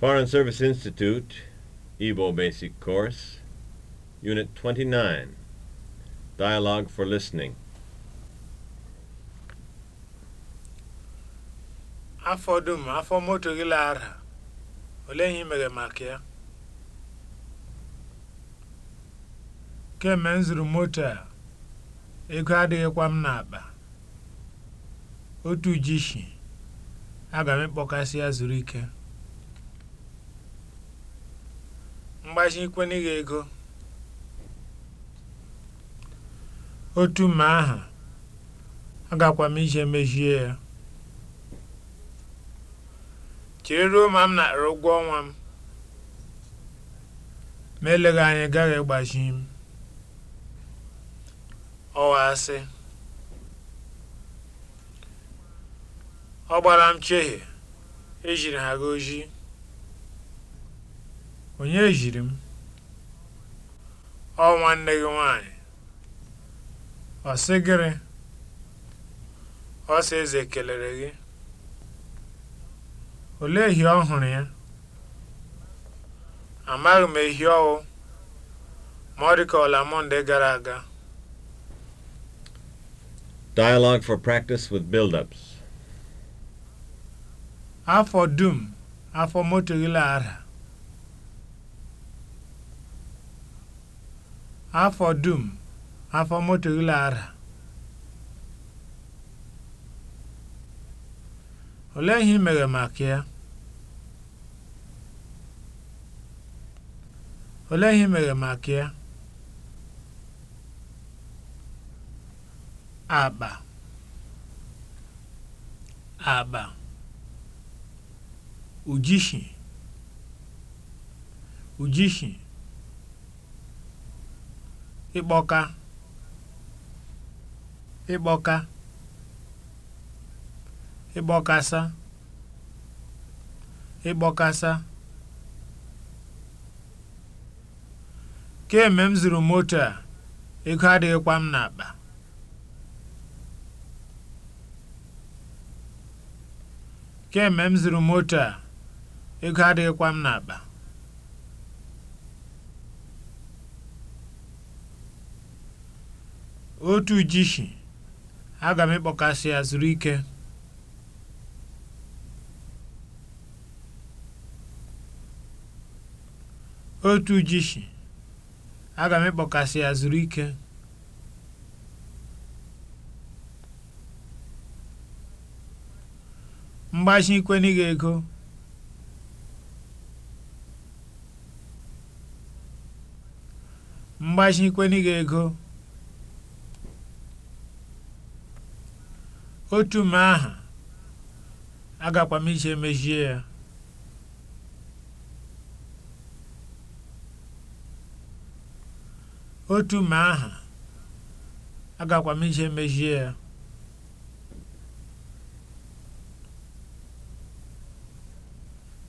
Foreign Service Institute, Igbo Basic Course, Unit 29, Dialogue for Listening. Afọ dum afọ moto gị lara, olee ihe imere maka ya? Kemgbe m zụrụ moto a, ego adịghịkwa m n'akpa. Otu jishi, aga m ịkpọkasị ya zuru ike. mgbazikwene gị ego otu mma aha agakwa m ije mejie ya chere ruo ma m natara ụgwọ ọnwa m ma eleghị anya gaghị ịgbaji m ọwa asị ọ gbara m chehie ejiri ha gị Onye jiri m? Ọ nwanne gị nwanyị Ọ sị gịrị? Ọ Eze kelere gị. Olee ehi ọ hụrụ ya? Amaghị m ehi ọwụ ma ọ ọla Mọnde gara aga. Dialogue for practice with build-ups. Afọ dum, afọ moto gị afọ dum afọ moto ara ole ihe mere maka ya olee ihe mere ịkpọka ịkpọka ịkpọkasa ịkpọkasa kemgbe m zụrụ moto a ego m n'akpa kemgbe moto a ego adịghịkwa m n'akpa otu jishi aga m ịkpọkasị ya zuru ike otu jishi aga m ịkpọkasị ya zuru ike mgbachi ego mgbachi ego otu m aha agakwa m ije mejie ya otu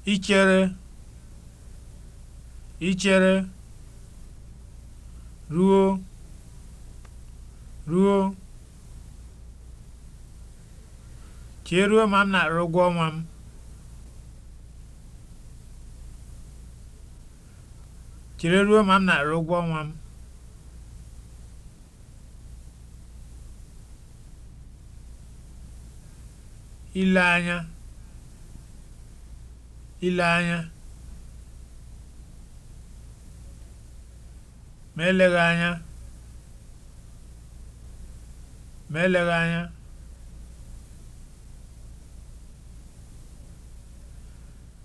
ya ichere ichere ruo ruo chee ruo ma m na-arụ ọnwa m chere ruo ma m na-arụ ụgwọ ọnwa m ile anya ile anya ma eleghị anya ma eleghị anya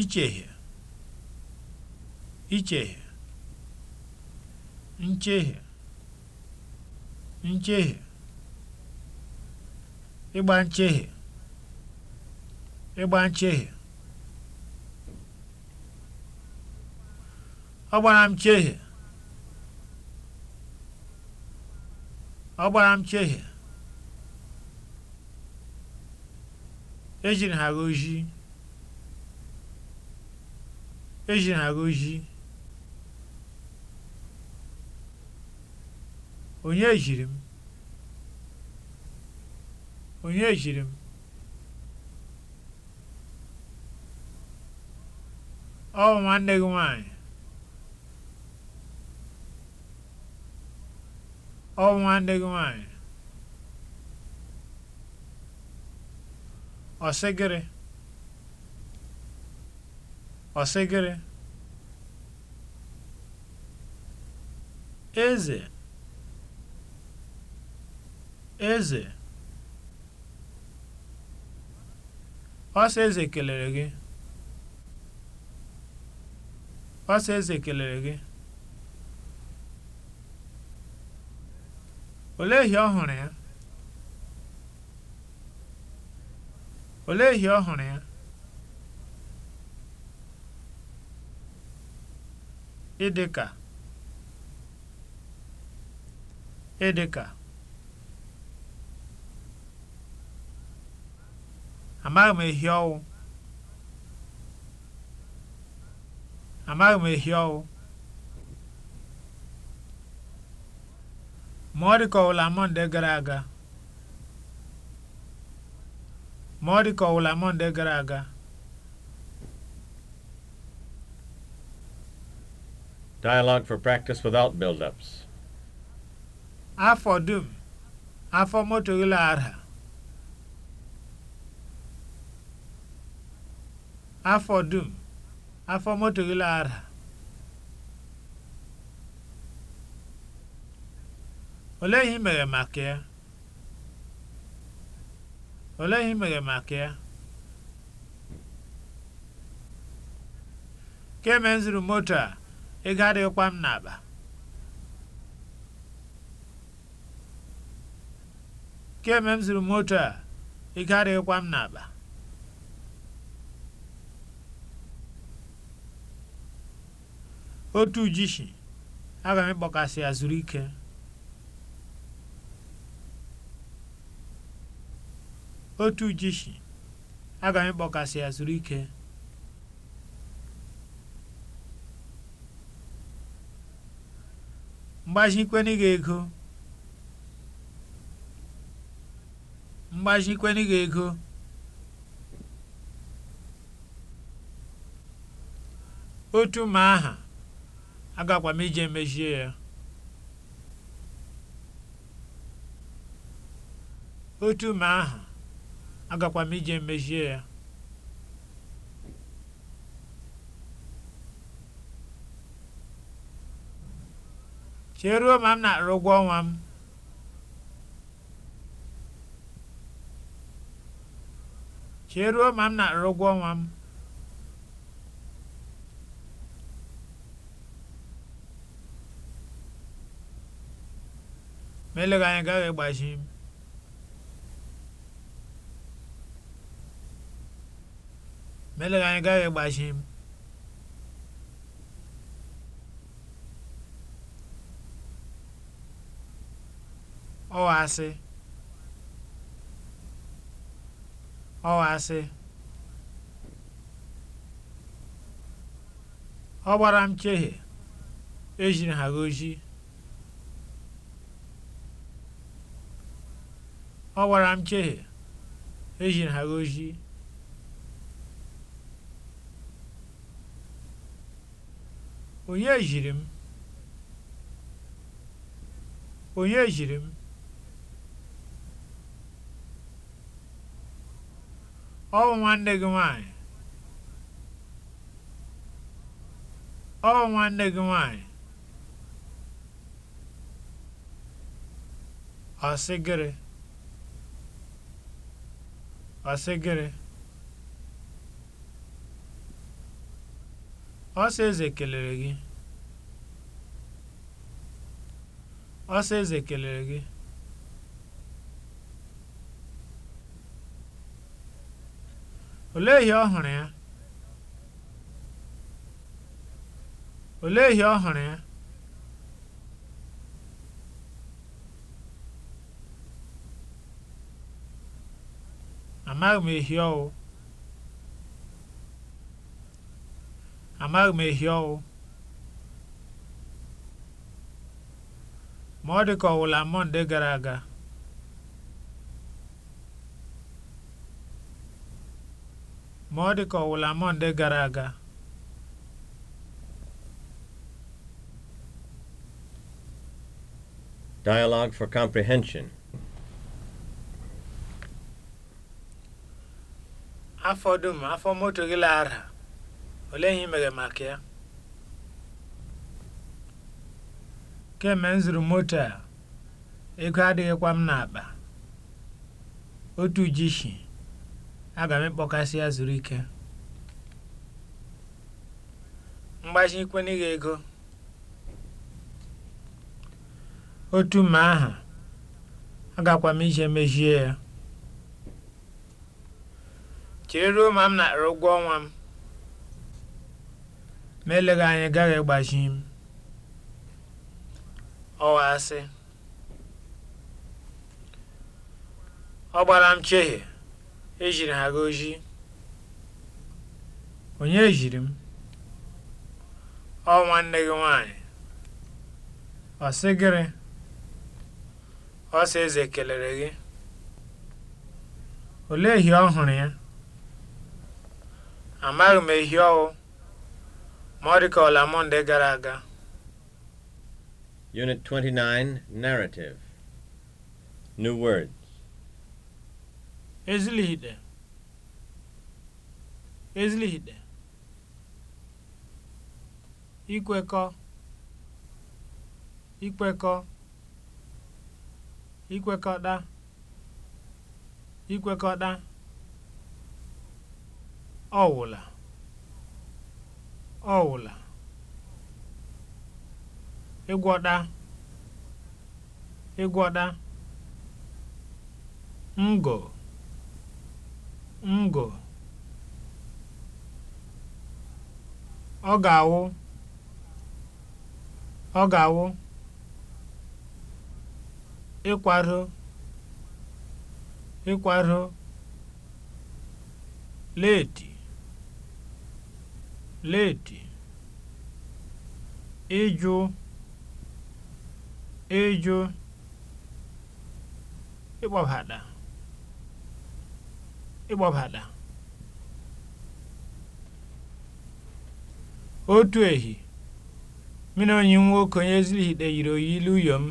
ichehie ichehie nchehie nchehie ịgba nchehie ịgba nchehie ọ gbara m chehie ọ gbara m chehie ejiri ha na gọzie onye jiri m onye jiri m ọ bụ nwanne gị nwanyị ọ bụ nwanne gị nwanyị ọsịgịrị ọsịgịrị eze eze ọsọ eze kelere gị ọsọ eze kelere gị ehi ọhụrụ ehi ọ hụrụ ya ịdịka ịdịka amaghị m ehi ọwụ amaghị m ehi ọwụ ma ọ dịka ọwụla ọ dịka ọwụla mọnde gara aga Dialogue for practice without build-ups. Afọ dum, afọ moto ụlọ ara. Afọ dum, afọ moto ara. Olee ihe mere maka ya? Olee ihe mere maka Kemgbe moto a. ego adịghịkwa m n'akpa m zuru moto a ego adịghịkwa m n'akpa otu ujishi aga m ịkpọkasị ya zuru ya zuru ike mgbazikwenụ gị ego gị ego otu ma aha agakwa m ije emezie ya Chee ruo ma m na-arụ ụgwọ ọnwa m. Chee ruo ma m na-arụ ụgwọ ọnwa m. m ọasị ọasị ọ ọ gbara m chehe ejiri ha goji ọ gbara m chehe ejiri ha goji onye jiri m onye jiri m Ọ bụ nwanne gị nwanyị Ọ bụ nwanne gị nwanyị nwaanyị? Ọsịgịrị ọsịgịrị ọsọ eze kelere gị ọsọ eze kelere gị Olee ihe ọ hụrụ ya? Olee ihe ọ hụrụ ya? Amaghị m ehi ọwụ. Amaghị m ehi ọwụ. Ma ọ dị ka ọ wụla Mọnde gara aga. ma ọ dị ka ọwụla Mọnde gara aga Dialogue for Comprehension afọ dum afọ moto gị lara olee ihe imere maka ya kemgbe m zụrụ moto a ego adịghịkwa m n'akpa otu jishi Aga m ịkpọkasị ya zuru ike. ikwena n'ịga ego. Otu mma aha, agakwa m ije mejie ya. Chere ruo ma m nara ụgwọ ọnwa m. Ma eleghị anya gaghị ịgbachi m. Ọwa asị. Ọ gbara m chehie. Ejiri m ha gọzie. Onye ejiri m? Ọ nwanne gị nwanyị Ọ sị gịrị? Ọ Eze kelere gị. Olee ehi ọ hụrụ ya? Amaghị m ehi ọwụ ma ọ dị ka ọla Mọnde gara aga. Unit 29, Narrative. New words. ezilihide ezilihide ikwekọ ikwekọ ikwekọda ikwekọda ọwụla ọwụla ịgwọda ịgwọda ngo ngọ̀ ọ ga-awụ ọ ga-awụ ịkwado ịkwado leeti leeti ịjụ ịjụ ịkpọbata ịgbabata otu ehi mụ onye enyi nwoke onye yiri oyi ilu m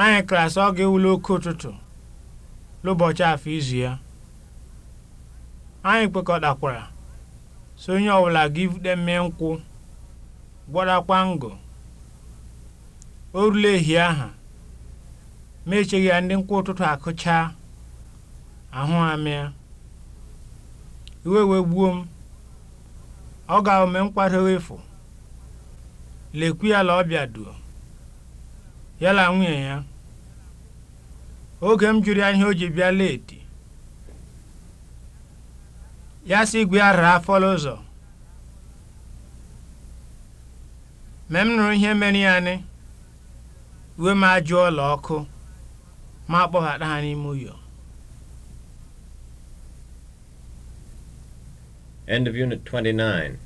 anyị klasị ọ ga-ewuli oke ụtụtụ n'ụbọchị afọ izu ya anyị kwekọtakwara so onye ọbụla ga ibute mmee nkwụ gwọrakwa ngụ o rule ehi aha ma echeghị ya ndị nkwụ ụtụtụ akụchaa ahụ amịa. Iwe wee gbuo m, ọ ga-eme nkwadoghị efu lekwu ya la ọbịa duo, ya la nwunye ya. Oge m jụrụ ya ihe o ji bịa leeti, ya si igwe ya raa fọlụ ụzọ. Mgbe m nụrụ ihe mere ya nị, iwe m ajụọ ọkụ ma akpọghata ha n'ime ụyọ. End of Unit 29.